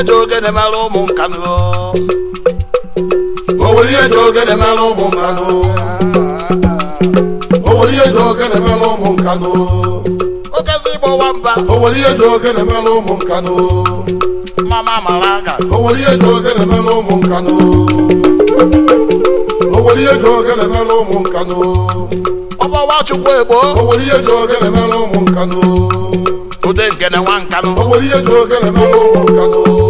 eji ogene mara ụmụ nkanụ oweli eji ogene mara ụmụ ụmụ nkanụ okezi gbọwa mba oweli eji ụmụ nkanụ mama mara aga oweli eji ụmụ nkanụ oweli eji ogene mara ụmụ ụmụ nkanụ ude nke na nwa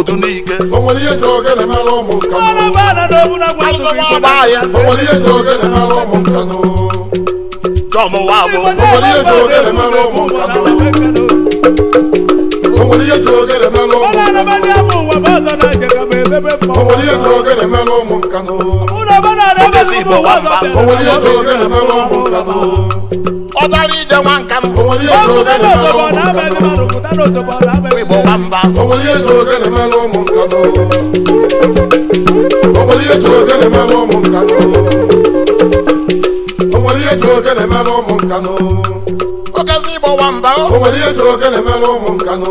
ndụ n'ike onwere ihe ji ogene mere ụmụ nkanụ onwere ihe ji ogene mere ụmụ nkanụ ọbara ije nwa nka m igbo gba mba okezi igbo nwamba ụmụ nkanụ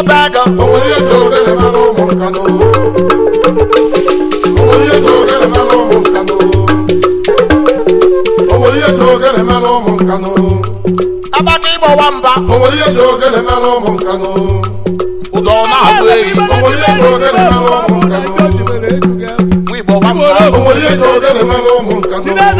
ọba ego onwere ihe ji ogere mara ụmụ nkanụ ihe ji ogere mara ụmụ ụmụ mba ụdọ na ehi ihe mara ụmụ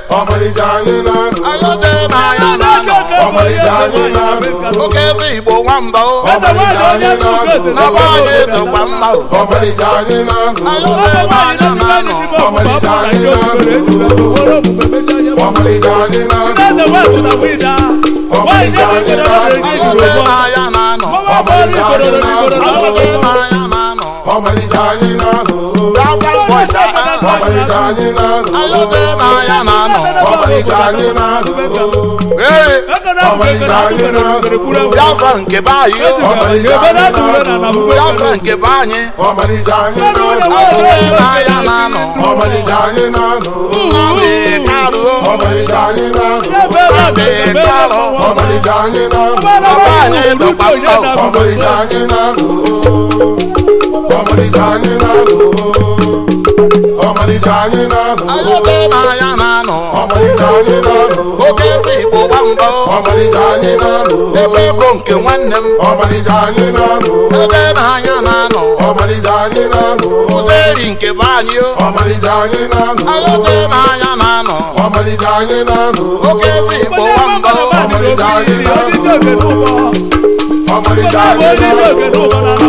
ọmalịcha anyị na na oke eze igbo nwamba anyị na na be anyị etokwa mma anyị na-anụ ọmalịcha anyị na anyị na anyị na na ọmalịcha anyị na-alụ anyị na-alụ anyị na-alụ anyị na-alụ nke anyị na-alụ ọmalịcha anyị na anọ. ọmalịcha anyị na-alụ ọmalịcha anyị na-alụ ọmalịcha anyị na-alụ anyị na-alụ anyị na-alụ ọmalịcha anyị na anọ ọmalịcha anyị na anyị na oke na ebe ko nke nwanne m ọmalịcha na na-anya na-anọ ọmalịcha anyị na-alụ ụzọ nke be anyị anyị na-alụ ayote na-anya na-anọ ọmalịcha anyị na-alụ oke eze igbo gba anyị na-alụ ọmalịcha anyị na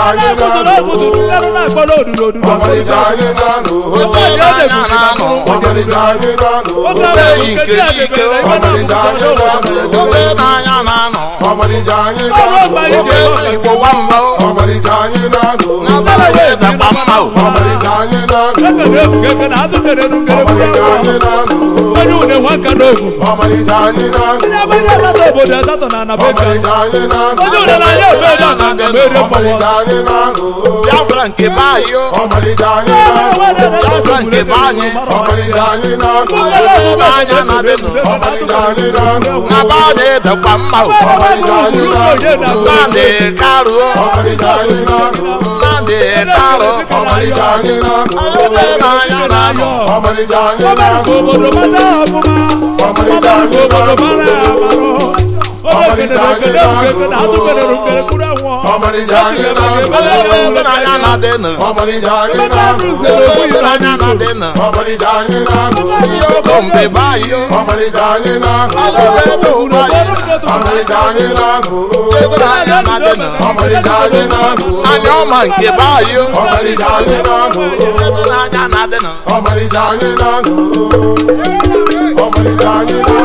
ayé náà lò ó. ọmọdéjà ayé náà lò ó. ọmọdéjà ayé náà lò ó. lẹ́yìn kejì ike eze mgba mma onye unewe aka obodo asatọ na anabeka onye une na-anya obodo na anyị na na na kwa na na-etarụ ọmarịcha ọ na-anụ ebe na ya na-anọ ọmarịcha anyị na-anụ ọmarịcha anyị na-anụ ọmarịcha anyị na-anụ anya nke anyị na na